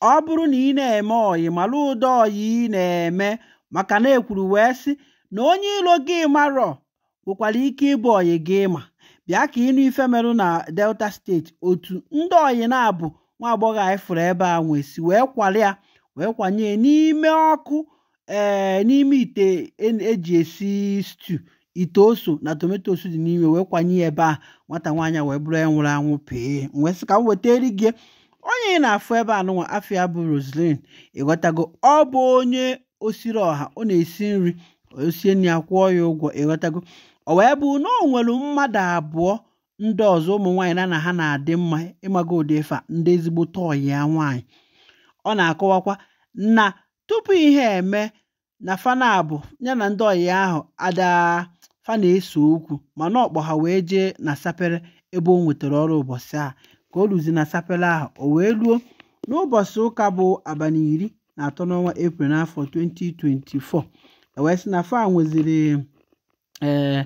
ọ bụrụ na ị na-eme ọyị mara ụdọ ọyị ị na-eme maka na ekwuru wee sị na onye iro gị marọ nwekwara ike ịbụ ọyị gị ma bịa ka ịnụ ife merụ na delta steeti otu ndị ọyị na-abụ nwa agbọghọ anyị fụrụ ebe a nwesị wee kwalịa ya wee kwanye n'ime ọkụ ee eh, n'ime ite eji e esi stew ite oso na tomatos dị n'ime wee kwanye ebe a nwata nwaanyị wee bụrụ ya nwụrụ anwụ pee nwesị ka m weta eri gị onye na-afụ ebe a nụnwa afia bụ Roseline ịghọtago ọ bụ onye osiri ọha ọ na-esi nri osie nri ya kwụọ ya ụgwọ ịghọtago ọ wee bụ na ọ nwere mmadụ abụọ ndị ọzọ ụmụ nwaanyị na na ha na-adị mma ịmaga ụdị ife ndị ezigbo tọyị ya nwaanyị ọ na-akọwakwa na tupu ihe eme na fanabu ya na ndị ọyị ahụ adaa fana na-ese okwu mana ọkpọ ha wee jee na sapere ebe o nwetara ọrụ ụbọchị a ka o ruzi na sapele ahụ o wee ruo n'ụbọchị ụka bụ abalị iri na atọ n'ọnwa eprel n'afọ 2024 ewee sị na fa nweziri ee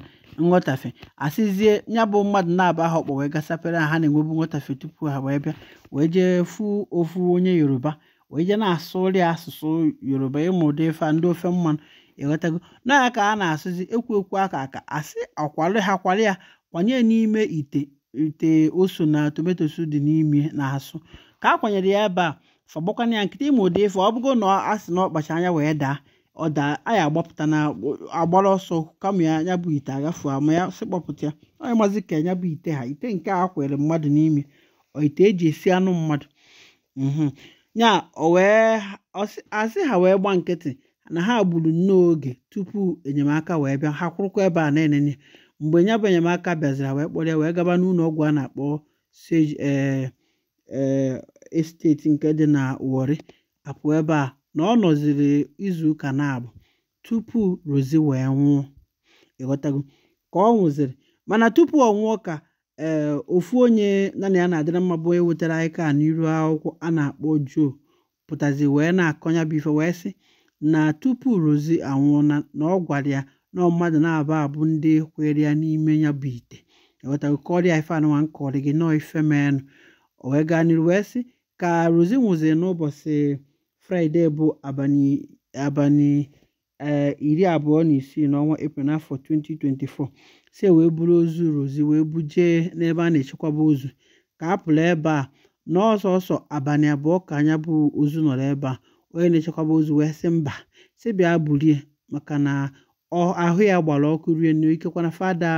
nghọtafe asịzie ya bụ mmadụ na-aba ha ọkpọ wee sapere ha na-enwebu nghọtafe tupu ha wee bịa wee jee fụ ofu onye yoruba wee jee na-asụrị asụsụ yoruba ịmụ ụdị ife ndị ofe mmanụ ịghọtago e na ya ka a na-asụzi ekwu ekwu aka aka asị akwalị ha kwalị ya kwanye n'ime ite nte oso na tomatoes dị n'ime na asụ ka a kwanyere ya ebe a fagbakwana ya nkịta ịma ụdị ife ọ bụgo na a sị na ọkpacha anya wee daa ọ daa anya agbapụta na agbara ọsọ kama ya nyabụ bụ ite agafu ama ya sị kpọpụta ya onye mazi ka ya bụ ite ha ite nke a kwere mmadụ n'ime ite eji esi anụ mmadụ mhmm. ya asị ha wee gba nkịtị na ha gburu nnọọ oge tupu enyemaka wee bịa ha kwụrụkwa ebe a na mgbe nya bụ enyemaka bịaziri wee kpọrọ ya wee gaba n'ụlọ ọgwụ a na-akpọ sage e, e, esteti nke dị na wọri apụ ebe a na ọ nọziri izuụka na abụ tupu rozi wee nwụọ ịghọtago ka ọ nwụziri mana tupu ọ nwụọ ka ee ofu onye na ya na-adịra mma bụ onye anyị ka n'iru akwụkwọ a na-akpọ jo pụtazi wee na-akọnya bụ ife wee sị na tupu rozi anwụọ na ọ gwara ya nọọ mmadụ na-abụ abụ ndị kwere ya n'ime ya bụ ite ewetago kọrịa ife anụnwa nkọrị gị nọọ ife o wee gaa n'iru wee sị ka rozi nwụzi n'ụbọchị fraịde bụ abalị e, iri abụọ na isii n'ọnwa epril n'afọ 2024 si e wee buru ozu rozi wee bujee n'ebe a na-echekwaba ozu ka a pụrụ ebe a n'ọsọsọ abalị abụọ ka anya bụ ozu nọrọ ebe a onye na-echekwaba ozu wee sị mba si bịa bulie maka na ahụ ya gbara ọkụ rienu ikekwana fada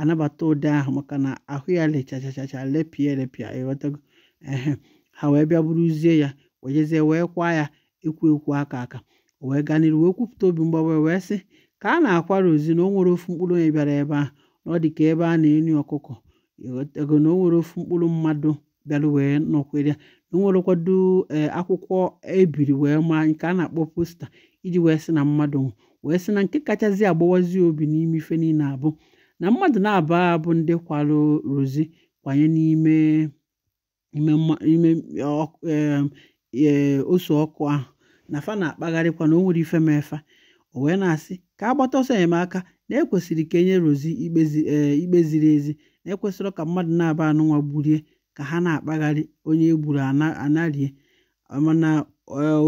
anabata ụdị ahụ maka na ahụ ya lechachachacha lepịa elepịa ịghọtago ehe ha wee bịa buruzie ya wejezie wee kwa ya ekwu ekwu aka aka wee gaa n'iru wee kwupụta obi mgbawa wee sị ka a na-akwara ozi na o nwere ofu mkpụrụ onye bịara ebe ahụ na ọ dị ka ebe a na-enyi ọkụkọ ego na o nwere ofu mkpụrụ mmadụ bịara wee nọkwere ya na o nwere kwado eh, akwụkwọ ebiri wee maa nke a na-akpọ posta iji wee sị na mmadụ wee sị na nke kachasị agbawazi obi n'ime ife niile abụ na mmadụ na aba abụ ndị kwarụ rozi kwanye n'ime ime e, e, e, ose ọkụ ahụ na fa na-akpagharịkwa na o nwere ife mefa o wee na-asị ka agbata ọsọ enyemaka na ekwesịrị ka enye rozi ikpe ziri ezi na ekwesịrị ka mmadụ na-aba anụnwa gburie ka ha na-akpagharị onye egburu anarie mana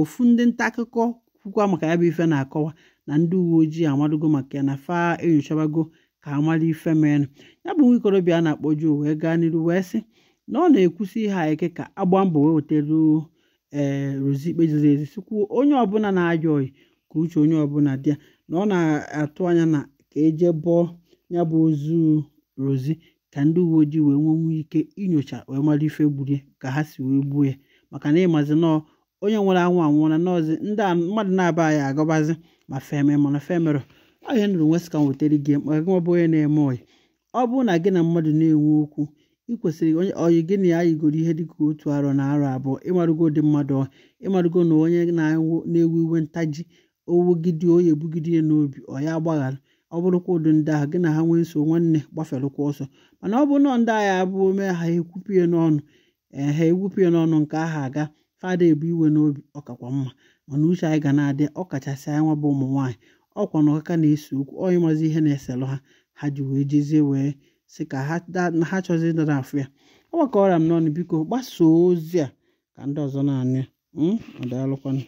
ofu ndị nta akụkọ kwukwa maka ya bụ ife na-akọwa na ndị uwe ojii amadugo maka ya na fa enyochabago ka mara ife mere ya bụ nwa ikorobịa a na-akpọ Joe wee gaa n'iru wee sị na ọ na-ekwusi ihe eke ka agba mbọ wee weteruo ee eh, rozi ikpe ziri ezi sikwuo onye ọbụla na-ayọ oyi ka uche onye ọbụla dị ya na ọ na-atụ anya na ka eje bụọ ya bụ ozu rozi ka ndị uwe ojii wee nwenwu ike inyocha wee mara ife gburie ka ha si wee gbuo ya maka na ịmazi nọọ onye nwere anwụ anwụọla nọọzi ndị mmadụ na-aba anyị agọbazi ma feme mana femerụ ọ ihe nụrụ nwe sị ka m gị mkpa gị bụ onye na-eme ọyị ọ bụrụ na gị na mmadụ na-enwe okwu ị kwesịrị onye ọyị gị na ya yigoro ihe dịka otu arọ na arọ abụọ ịmarụgo dị mmadụ ịmarụgo na onye na-ewu iwe ntaji owugide oyi ebugide ya n'obi ọ ya agbaghara ọ bụrụkwa ụdị ndị ahụ gị na ha nwee nso nwanne gbafelụkwa ọsọ mana ọ bụ nọ ndị agha abụ ome ha ekwupụ ya n'ọnụ ehe ha ekwupụ ya n'ọnụ nke aha aga fada ebu iwe n'obi ọkakwa mma mana uche anyị ga na-adị ọkachasị anyị nwa bụ ụmụ nwaanyị ọkwa na ọkaka na-ese okwu onye mazi ihe na-eselụ ha ha ji wee jezie wee sị ka ha chọzi ịdara afụ ya ọgbakọrịa m n'ọnụ biko gbasoo ozi a ka ndị ọzọ na-anya hmm,